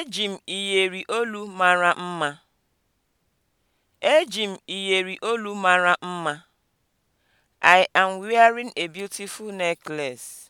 Eji m iyeri olu mara mma. Eji m iyeri olu mara mma. I am wearing a beautiful necklace.